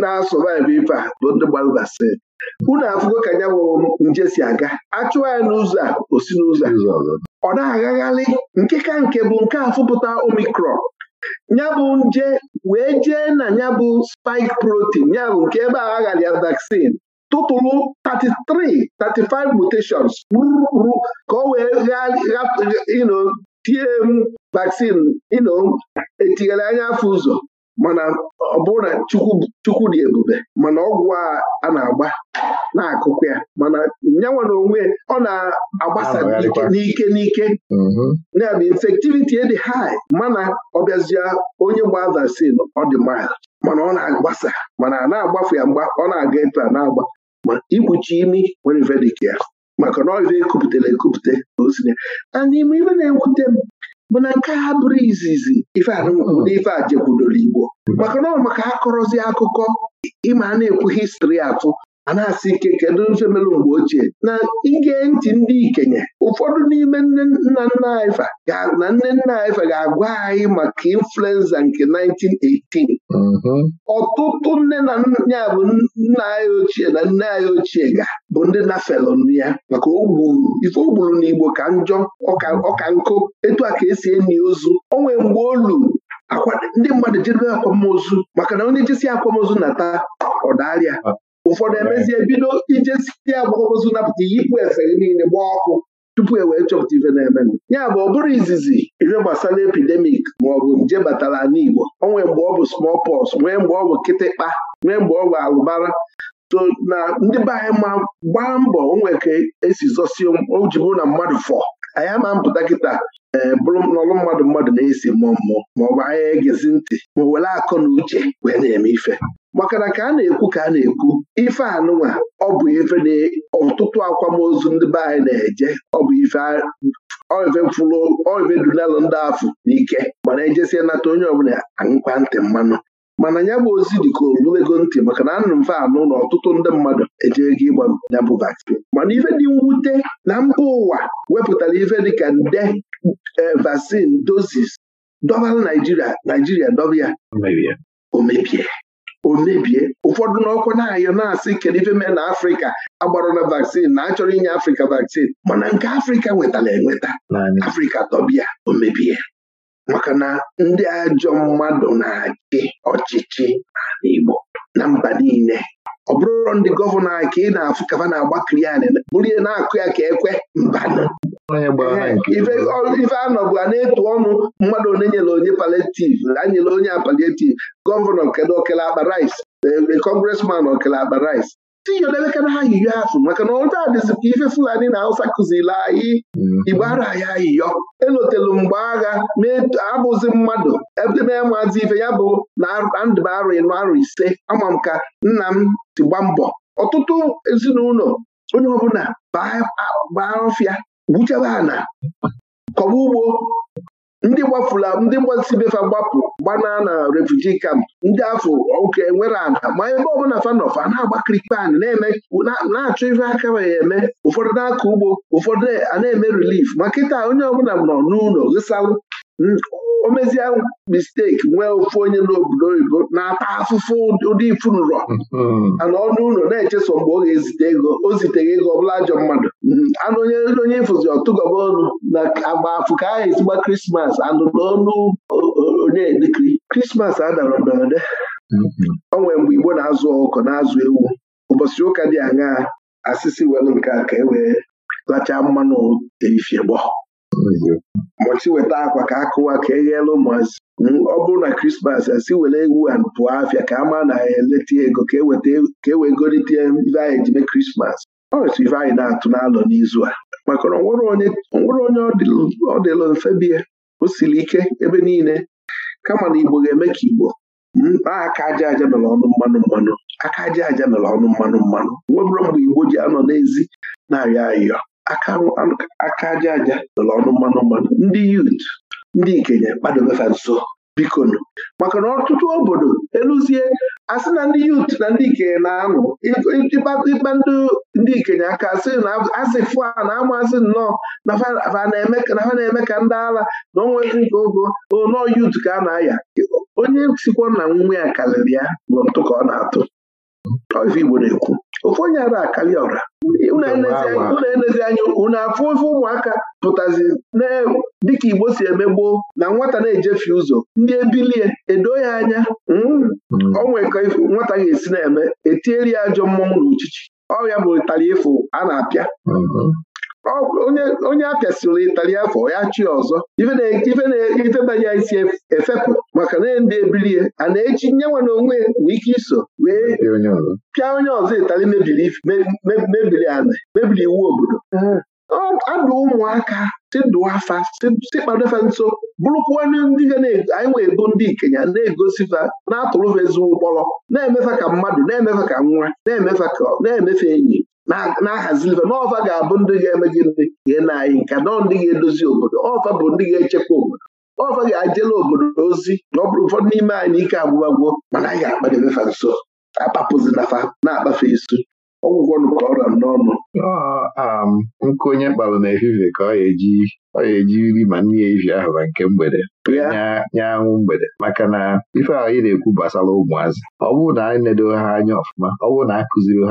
na-asọvaivụ ife a bụ ndị gbarụgasị unu afụgo ka ya bụ nje si aga achụwa ya n'ụzọ a o si n'ụzọ ọ na-agagharị nke ka nke bụ nke afụpụta omikron nyabụ nje wee jee na bụ spike protein yabụ nke ebe a aghara ya vaccine tụtụrụ 33 35 mutations ka ọ wee tie m vaccine ino anya afọ ụzọ mana ọ bụrụ na chukwu dị ebube mana ọgwụ a na-agba na-akụkụ ya mana ya nwere onwe ọ na-agbasa n'ike n'ike mm-hmm. ya bụ infectivity e dị high mana ọ bịazie onye gba vaccine ọ dị mild mana ọ na-agbasa mana a na-agbafu ya mgba ọ na-aga ịtụ a na-agba ma ikpuchi imi nwere verdict ya maka na ọ ekupụtara ekupụta ka o si n'ime ibe na-ekwute m bụ na nke ha bụrụ izizi ife na ife a jekwudoro Igbo maka na ọ maka akọrọzi akụkọ ịma a na-ekwu histri atụ a na-asị ike kedu mfe melụ mgbe ochie na ige ntị ndị ikenye ụfọdụ n'ime nne nna nna anyị na nne nna anyị ga-agwa anyị maka influenza nke 1918 ọtụtụ nne na nna bụ nna anyị ochie na nne anyị ochie ga bụ ndị felon ya maka ogburu ife ogburu na Igbo ka njọ ọka nkụ etu a ka esi enyi ozu onwe mgbe olu ndị mmadụ jedebe akwamozu maka na onye jisi akwamozu na taa ọdarịa ụfọdụ emezie bido ijesie agbakọozu napụta yipụ efe gị niile gbaa ọkụ tupu e wee chọpụta ife na-eme ya bụ ọ bụrụ izizi ife gbasara epidemik maọbụ nje batara n'Igbo o nwee mgbe ọ bụ smallpox nwee mgbe ọ bụ kịtịkpa nwee mgbe ọ bụ alụbara so na ndị be anyị ma gbaa mbọ onwee ka esi zọsie ojibu na mmadụ fọ anyị ama mpụta kịta ee eh, bụrụ n'ọlụ mmadụ mmadụ na-esi mmụọ mmụọ maọbụ anya egezi ntị ma were akọ na uche wee na-eme ife maka na ka a na-ekwu ka a na-ekwu ife anụnwa ọ bụ ife na ọtụtụ akwamozu ndị be anyị na-eje ọ bụ ife fụrụ oife dunalụ ndị afụ n'ike mana ejesie nata onye ọbụla aṅụkwa ntị mmanụ mana ya bụ ozi dị ka olulego ntị maka na anụ mfe anụ na ọtụtụ ndị mmadụ ejego ịgba ya bụ vaccine mana ife dị mwute na mba ụwa wepụtara ife dịka nde e, vaccine dozis dọbara Naijiria Naijiria dọba ya omebie Omebie ụfọdụ n'ọkụ na-ayọ na-asị kedu ife mee na afrịka agbara na vaccine na achọrọ inye afrịka vaccine mana nke afrịka nwetara enweta afrịka dọbịa omebie. mebie maka na ndị ajọ mmadụ na-achị ọchịchị na Igbo na mba niile ọ bụrụ ndị gọvanọ anyị ka ị na-afụ kafa na-agbakiri ya bụrụ ihe na-akụ ya ka ekwe mbanụ anọbụ a na-etu ọnụ mmadụ onye nyere onye paletiv anyere onye apaletiv gọvanọ kedu okele akpa rice kọngresman eh, eh, okele akpa rice si ya debekana ha yiyo azụ maka na ụta e e dịzị e ka ife Fulani na awụsa kụziri anyị Igbo ara anyị ayiyo elotelu mgbe agha abụzi mmadụ edebe maazi ife ya bụ na ndụ arụ ịnụ arụ ise ama m ka nna m tigba mbọ ọtụtụ ezinụlọ onye ọbụla baa ọfịa gbuchebe ana kọba ugbo ndị gbafula ndị gbasibefa gbapụ gbanaa na refuji kamp ndị afọ oke nwere ada ma ebe ọbụla fanọfa na-agbakirikpe ana na-achọ ife aka ya eme ụfọdụ na-akọ ugbo ụfọdụ a na-eme rilif ma kịta onye ọbụla nọ n'ụlọ gịsalụ o mezie misteki nwee ofu onye n'obodo oyibo na-ata afụfụ ụdị ifunrọ mm-hmm. ana ọnụ ụlọ na-echeso mgbe ọ ga-ezite ego o ziteghị ego ọbụla ajọ mmadụ mm-hmm. anụ onye onye ịfụzi ọtụgọba ọnụ na agba afụ ka aha ezigba krismas anụ n'ọnụ onye dịkiri krismas adara mberede ọ mm-hmm. nwere mgbe igbo na-azụ ọkụkọ na-azụ ewu ụbọchị ụka dị aṅaa asịsị were nke a ka e wee lachaa mmanụ ifie gbọọ mbọchị weta akwa ka akụwa ka eghela ụmụazị ọ bụrụ na krismas asị were ewu a pụọ afịa ka a maa na ya e eleta ego ka e, e wee golite ife anyị ji mee krismas ọ otu ife anyị na-atụ n'alọ n'izu a maka na onwere onye ọ dịlụ mfe bie o siri ike ebe niile kama na igbo ga-eme ka igbo mkpa aka aja aja mere ọnụ mmanụ mmanụ aka aja aja mere ọnụ mmanụ mmanụ nwebụrụ mgbe igbo ji anọ n'ezi na-arịọ arịọ aka aja aja lụrụ ọnụ mmanụ mmanụ ndị yut ndị ikenye kpadobefa nso bikonu maka na ọtụtụ obodo eluzie asị na ndị yut na ndị ikenye na-anụ ịkpa ndị ikenye aka asị na asị fụa na amazị nnọọ na ha na-eme ka ndị ala na ọnwa nke ogo nọọ yut ka a na-aya onye sikwa na nwunwe ya karịrị ya bụ ntụ ka ọ na-atụ Igbo na-ekwu ofu onye ara akali ọra unu enezi anya unu afụ ofe ụmụaka pụtazi dịka Igbo si eme gboo na nwata na-ejefe ụzọ ndị ebilie edo ya anya hmm? hmm. onwe ka nwata ga-esi na-eme etieri ya ajọ mmọnwụ na uchichi ọ bụ ịtara ịfụ a na-apịa hmm. onye a ịtali itali afọ ya chi ọzọ ife banya isi e-, efepụ maka na ndị ebilie a na-eji nye nwana onwe nwee ike iso wee pịa onye ọzọ itali mebiri ana mebiri iwu obodo adụ ụmụaka tịdụa afa tịkpadofe nso bụrụkwa ndị ga anyị wee bụ ndị ikenya na-egosifa na-atụrụfa ezigbo ụkpọrọ na-emefe ka mmadụ na-emefe ka nwa na-emefe ka na-emefe enyi na-ahazi ife n'ọfa ga-abụ ndị ga-eme gị ndị gee na anyị nke nọọ ndị ga-edozi obodo ọfa bụ ndị ga-echekwa obodo ọfa ga-ajela obodo ozi na ọ bụrụ ụfọdụ n'ime anyị ike agbụgbagwo mana anyị ga-akpadebe fa nso akpapụzi na na-akpafe isu ọgwụgwọ nụkwara ọrịa n'ọnụ um, nkụ onye na n'efifie ka ọ ga-eji ọ eji nri ma nne ya ahụ na nke mgbede nye anwụ mgbede maka na ife ahụ ị na-ekwu gbasara ụmụazị ọ bụrụ na anyị nedo ha anya ọfụma ọ bụrụ na a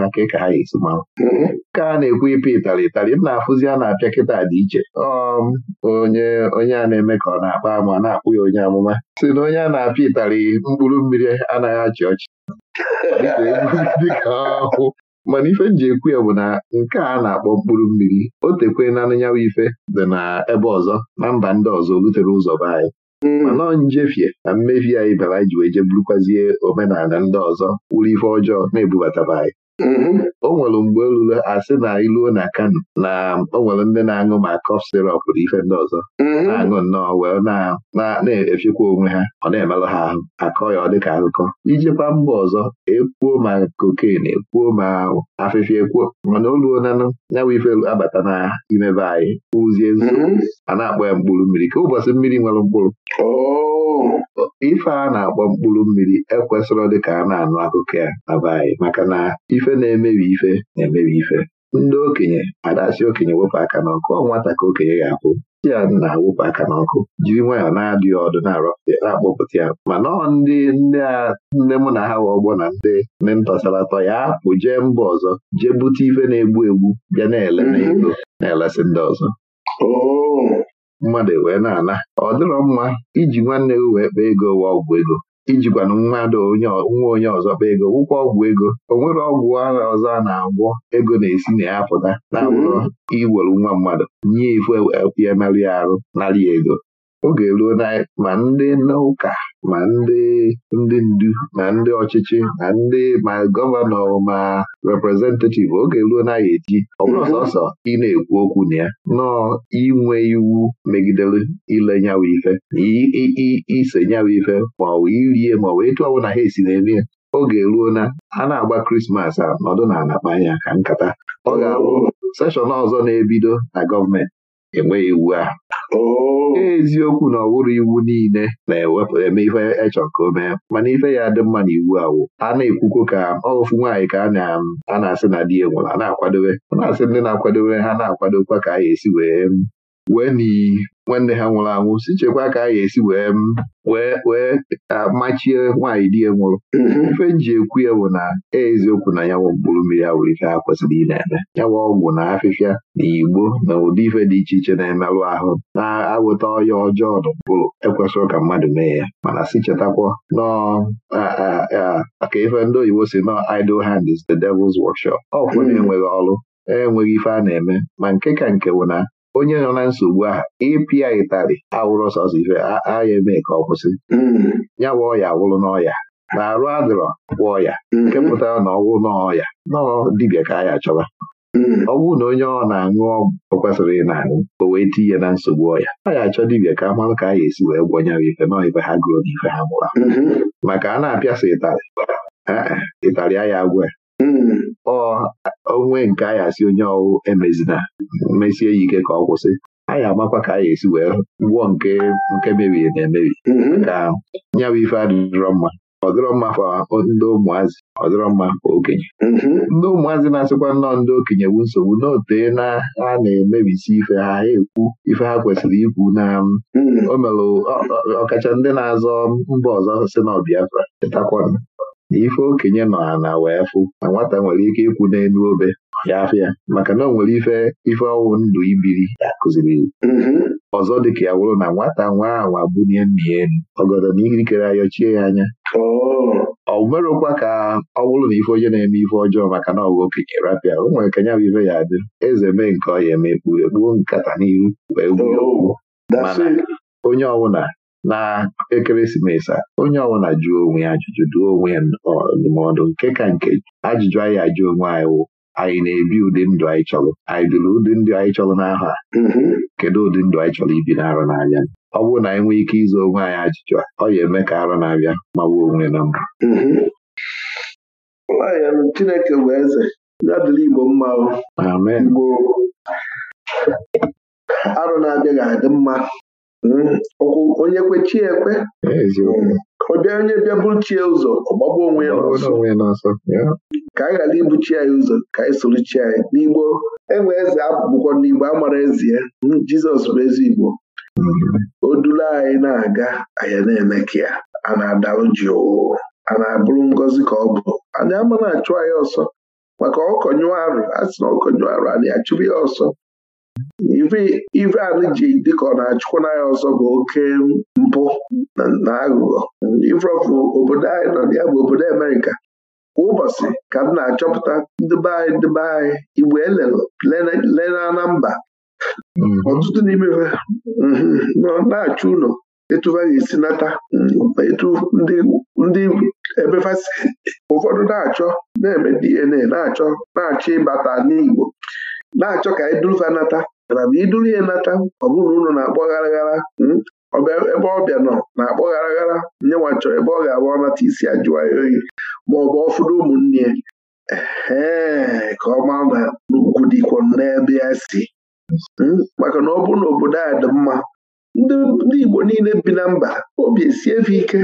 ha ka ka ha ga-esi mm-hmm. ka a na-ekwu ịpị ịtarị ịtarị m na-afụzi a na-apịa kịta dị iche um, onye onye a na-eme ka ọ na-akpa ama na-akpụ ya onye amụma si na onye a na-apịa ịtarị mkpụrụ mmiri anaghị achị ọchị mana ife m ji ekwu ya bụ na nke a na-akpọ mkpụrụ mmiri o tekwe na anyanyanwụ ife dị na ebe ọzọ na mba ndị ọzọ rutere ụzọ be anyị hmm. mana njefie na mmefi anyị bara ji wee je burukwazie omenala ndị ọzọ wuru ife ọjọọ na ebubata anyị Mhm. o nwere mgbe olule asị na iluo na Kano na o nwere ndị na-aṅụ ma kọf sirop na ife ndị ọzọ mhm. na-aṅụ nnọọ wee na-efikwa onwe ha ọ na-emerụ ha ahụ akọ ya ọ dịka akụkọ ijikwa mba ọzọ ekwuo ma koken ekwuo ma afịfịa ekwuo mana oluo nanụ ya ife abata na imebe anyị ụzie nzu mhm. a na-akpọ ya mkpụrụ mmiri ka ụbọchị mmiri nwere mkpụrụ oh. ife a na-akpọ mkpụrụ mmiri ekwesịrọ dịka a na-anụ akụkọ ya na anyị maka na ife ife na-emebi ife na-emebi ife ndị okenye si okenye wepụ aka n'ọkụ ọ nwata ka okenye ga-akwụ ti ya na-awụpụ aka n'ọkụ jiri nwayọ na-adịghị ọdụ na na-akpọpụta ya mana ọ ndị ndị mụ na ha wee ọgbọ na ndị ndị ntọsaratọ ya apụ jee mba ọzọ jee bute ife na-egbu egbu bịa na-ele mhm. na na-elesị ndị ọzọ oh. mmadụ wee na-ana ọ dịrọ mma iji nwanne gị wee kpaa ego ụwa ọgwụ ego ijikwana mmadụ nwa onye ọzọ kpa ego gwụkwa ọgwụ ego o nwere ọgwụ ara ọzọ a na-agwọ ego na-esi na ya pụta na-abụrụ mm-hmm. iwere nwa mmadụ nye ifu e, e, emerụ ya arụ narị ego oge ruo ma ndị n'ụka ma ndị ndị ndu ma ndị ọchịchị ma ndị ma gọvanọ ma reprezentativ oge ruo na eji ọ bụrụ sọsọ ị na-ekwu okwu na ya nọọ inwe iwu megidere ile nyawa ife na ise nyawa ife ma ọ irie ma ọ bụ etu ọ ha esi na-eme ya oge ruo na a na-agba krismas a nọdụ na anakpa anya ka nkata ọ ga-abụ seshọn ọzọ na-ebido na gọọmenti enweghị iwu a oh. eziokwu na ọwụrụ iwu niile na-ewepụ eme ife echọ ka o mana ife ya dị mma na iwu awụ a na-ekwukwo ka ọgụfụ nwaanyị ka a na-asị na di ya a na-akwadobe a na-asị ndị na-akwadobe ha na-akwadokwa ka a ga-esi wee wee nwanne ha nwụrụ anwụ si chekwa ka a ga-esi wee wee machie nwaanyị di ya nwụrụ ife nji ekwu ya bụ na eziokwu na ya mkpụrụ mmiri a nwere ike ha kwesịrị ị na-eme ya ọgwụ na afịfịa na igbo na ụdị ife dị iche iche na-emerụ ahụ na-awụta ọya ọjọọ n'ụkpụrụ ekwesịrị ka mmadụ mee ya mana si chetakwa maka ife ndị oyibo si nọ idle hand is the devil's workshop ọkwụ na-enweghị ọrụ enweghị ife a na-eme ma nke ka nke bụ na onye nọ na nsogbu ahụ ịpịa ịtarị awụrụ ọsọsọ ife agha eme ka ọ kwụsị mm. ya bụ ọya awụrụ n'ọya na arụ adịrọ bụ ọya mm-hmm. nke pụtara na ọwụ n'ọya nọọ dibịa ka ya chọba mm. Ọgwụ na onye ọ na-aṅụ ọgwụ kwesịrị ị na-aṅụ o wee tinye na nsogbu ọya ọ ya achọ dibịa ka a marụ ka a ya esi wee gwọnyere ife nọọ ife ha gụrụ na ife ha mụrụ mm-hmm. maka a na-apịasị ịtarị ịtarị agwụ ya onwe nke ya asị onye ọwụ emezina mesie ya ike ka ọ kwụsị anyị amakwa ka anyị esi wee gwụọ nke nke mebiri na emebi mm-hmm. ka nyawa ife adịrọ mma ọ mma fa ndị ụmụazị ọ mma okenye mm-hmm. ndị ụmụazị na-asịkwa nnọọ ndị okenye bụ nsogbu n'ote na ha na-emebisi ife ha ha ekwu ife ha kwesịrị ikwu na um, mm-hmm. o ọkacha ndị na-azọ mba ọzọ si na Biafra chetakwana na ife okenye nọ na wee fụ na nwata nwere ike ikwu n'elu obe ya afịa maka na o nwere ife ife ọnwụ ndụ ibiri ya kụziri mhm. ọzọ dịka ya wụrụ na nwata nwa ahụ abụnye nna ya elu ọgọdọ na ikikere ayọchie ya anya oh. ọ merụkwa ka ọ bụrụ na ife onye na-eme ife ọjọọ maka na ọgụ okenye rapịa o nwere kenya bụ ife ya adị eze mee nke ọ ya eme ekpughe kpuo nkata n'ihu wee gbuo okwu oh. onye ọbụla na ekeresimesi a onye ọbụla jụọ onwe ya ajụjụ dụọ onwe ndụmọdụ nke ka nke ajụjụ anyị ajụ onwe anyị wụ anyị na-ebi ụdị ndụ anyị chọrọ anyị biri ụdị ndụ anyị chọrọ n'ahụ a mm-hmm. kedu ụdị ndụ anyị chọrọ ibi n'arọ na-abịa. ọ bụrụ na anyị nwee ike ịzụ onwe anyị ajụjụ a ọ ya eme ka arọ na-abịa ma gbuo onwe na mbụ mm-hmm. Chineke bụ eze adịla Igbo mma Igbo arọ na-abịa ga-adị mma Hmm, onye chi ekwe ọ bịa onye bịa chie ụzọ ọgbagba onwe ya ka anyị ghara ibuchi anyị ụzọ ka anyị chi anyị n'igbo enwe eze bụkwa n'igbo a mara ezie hmm, jizọs bụ ezi igbo o anyị na-aga anyị na-eme ka ya a na-adalụ jụụ a na-abụrụ ngọzi ka ọ bụ anyị ama na-achụ anyị ọsọ maka ọkọnyụ arụ a sị na ọkọnyụ arụ anyị achụrụ ya ọsọ ife anyị ji dịka ọ na-achụkwa n'anya ọzọ bụ oke mpụ na aghụghọ obodo anyị nọ ya bụ obodo Amerịka kwa ụbọchị ka m na-achọpụta ndịbe anyị ndịbe anyị igbo elele na mba mm-hmm. ọtụtụ n'ime mm-hmm, nọ na-achụ ụlọ etufa ga-esi nata mm, etu ndị ebefasi ụfọdụ na-achọ na-eme DNA na-achọ na-achọ ịbata n'Igbo na-achọ ka idurufa nata mana bụ iduru ya nata ọ bụrụ ụlọ na-akpọ garaghara hmm, ebe ọbịa nọ na-akpọ garaghara nye nwa chọrọ ebe ọ ga-abụ ọnata isi ajụwa oyi ma ọ bụ ọfụrụ ụmụnne ee ka ọ maa na n'ugwu dịkwa n'ebe ya si hmm, maka na ọ bụrụ na obodo a dị mma ndị Igbo niile bi na mba obi esie efe ike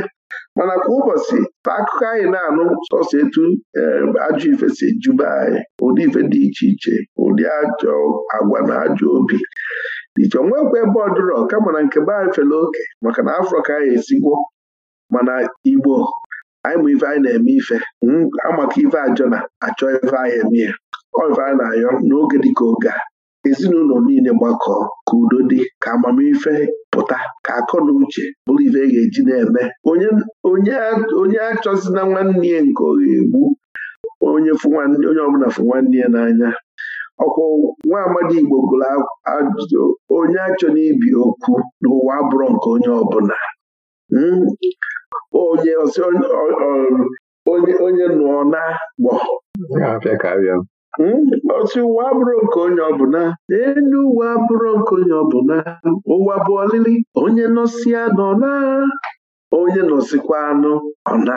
mana kwa ụbọchị ta akụkọ anyị na-anụ sọsọ etu eh, ajọ ife si ejube anyị ụdị ife dị iche iche ụdị ajọ agwa na ajọ obi dị iche nwekwa ebe ọdụrọ kama na nke be anyị fere oke maka na afrọ ka anyị esigwo mana igbo anyị ma ife anyị na-eme ife amaka ife ajọ na achọ ife anyị eme ya ọ ife anyị na-ayọ n'oge dịka oge a ezinụlọ niile gbakọọ ka udo dị ka amamife pụta ka akọ na uche bụrụ ife e ga-eji na-eme onye achọzina nwanne ya nke ọ ga-egbu onye ọbụla fụ nwanne ya n'anya ọkwa nwa amadi Igbo gụrụ ajụjụ onye achọ n'ibi okwu n'ụwa abụrụ nke onye ọbụla hmm? onye nụọ na gbọ otu ụwa abụrụ nke onye ọbụla elu ụwa abụrụ nke onye ọbụla ụwa bụ ọlịlị onye nọsịa nọ na onye nọsịkwa anụ ọ na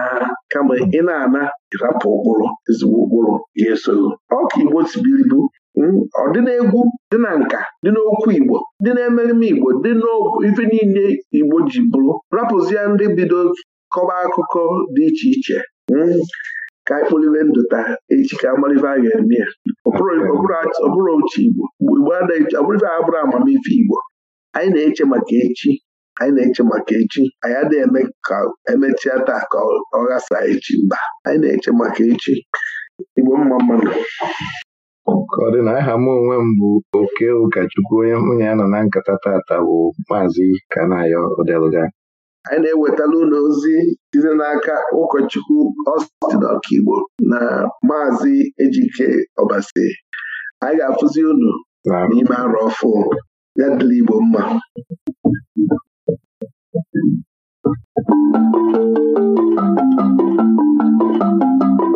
kama ị na-ana ịrapụ ụkpụrụ ezigbo ụkpụrụ ga-esoro ọka igbo tibiribu hmm, ọ dị n'egwu dị na nka dị n'okwu igbo dị n'emerime igbo dị n'ife niile igbo ji bụrụ rapụzie ndị bido kọba akụkọ dị iche iche hmm. ka anyị kpụliwe ndụ taa echi ka amalive a ga-eme ya ọbụrụ oche Igbo Igbo ọbụrụife a bụrụ amamife Igbo anyị na-eche maka echi anyị na-eche maka echi anyị adịghị eme ka emechia taa ka ọ ghasa echi mba anyị na-eche maka echi Igbo mma mmadụ ka ọ dị na aha m onwe m bụ oke ụkọchukwu onye hụ ya nọ na nkata tata bụ maazị Kanayo Odeluga anyị na-ewetala ụlọ ozi site n'aka ụkọchukwu Austin Ọkigbo na Maazị Ejike Ọbasi anyị ga-afụzi ụlọ n'ime arụ ọfụ ya dịla Igbo mma